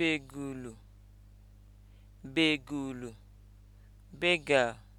begulu begulu beggar